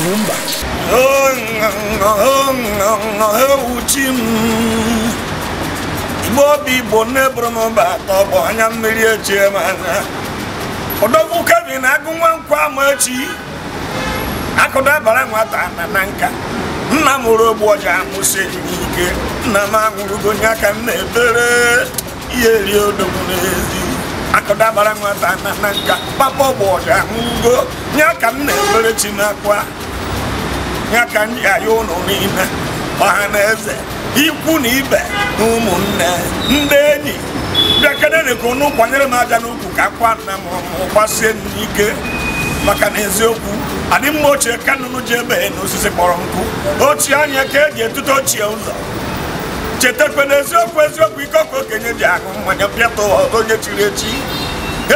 Lumumba. Ewuchi m igbe obi igbo nne bụrụ mba atọ bụ anya mmiri eji eme anya ọdọgwu kebi na agụ nwa nkwa ama echi akụdabara nwata na nka nna m mụrụ ogbu ọja amụsị ike. nna m anwụrụgo onye aka m ebere ihe eri n'ezi nwata na papa ọgbụ ọja amụgo nye m na-ebere ya ka m ji ụlọ n'ime ọha na eze ikwu na ibe na ụmụnne ndị enyi bịakedere ụnụ kwanyere m aja n'ukwu ka akwa nna m gbasie n'ike maka na eziokwu adị mma ochie ka ji ebe n'osisi kpọrọ nkụ ochie anya ka eji etute ochie ụzọ chetakwe na eziokwu eziokwu ike ọkụ okenye ji ahụ mmanya pịata onye chiri echi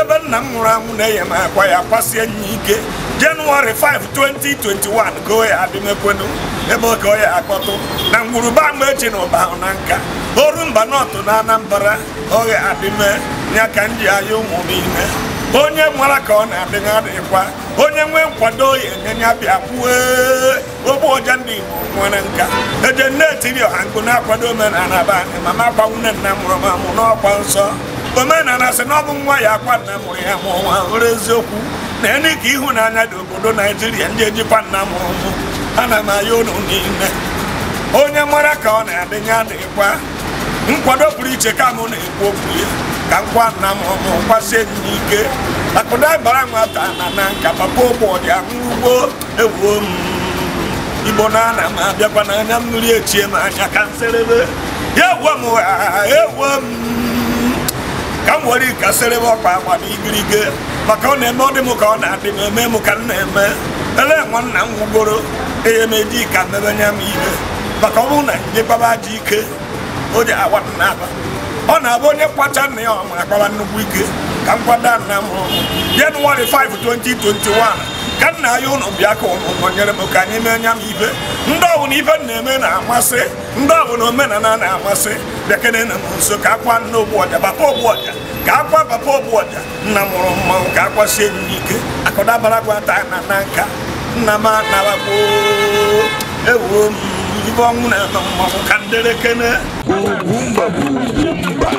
ebe nna m nwụrụ anwụ na-enye m akwa ya kwasie nye ike jenụwarị 5 2021 goo ya adịmekwenu ebe oge ọ ya akpọtụ na ngwuruba ama echi na ụba ahụ na nka oru mba nọtụ na anambra oge adịme ya ka m ji anya ụmụ ime, onye nwara ka ọ na-adịghị adịkwa onye nwee nkwado ya enyenye bịa kwue ogbe ọja ndị igbo nwere nka eje nne etiri ọha nkụ na-akwado omenala be anyị mama gbanwune nna mụrụ m amụ n'ọkwa nsọ omenala sị na ọ bụ nwa ya akwa nna mụrụ ya ma ọnwa were eziokwu na ene ka ịhụnanya dị obodo naijiria ndị ejikwa nna mụrụ mụ ana m aya ụlọ niile onye mara ka ọ na-adị na adịghịkwa nkwado pụrụ iche ka mụ na-ekwu okwu ya ka nkwa nna m ọmụ kwasie m ike. akụda bara nwata na na nka papa ụbọchị ahụ ugbo ewuo m igbo na ana m abịakwa n'anya mmiri echie m anya ka nserebe ya ewuo m ha ewuo m nwere ikasịrị m ọkpa akwa na maka ọ na-eme ọ dị m ka ọ na-adị m eme m ka m na-eme ele nwanna m gwugoro ehe meji ka mmebenye m ihe maka ọ bụrụ na ji ike o ji ọ na-abụ onye kwacha nna ya akpaba nnukwu ike ka m kwado nna m ka nna ya ụnụ bịa ka ụnụ nyere m ka anyị mee anya m ibe ndị ọbụla ibe na-eme na-amasị ndị ọbụla omenala na-amasị bekene na m nso ka akwa nna ọja papa ogbuọja ka akwa papa ogbuọja nna mụrụ mmanwụ ka akwasie m n'ike akụdabara gwata na na nka nna m anabakpo ewuo m ibe ọnwụ na mmanwụ ka ndere kene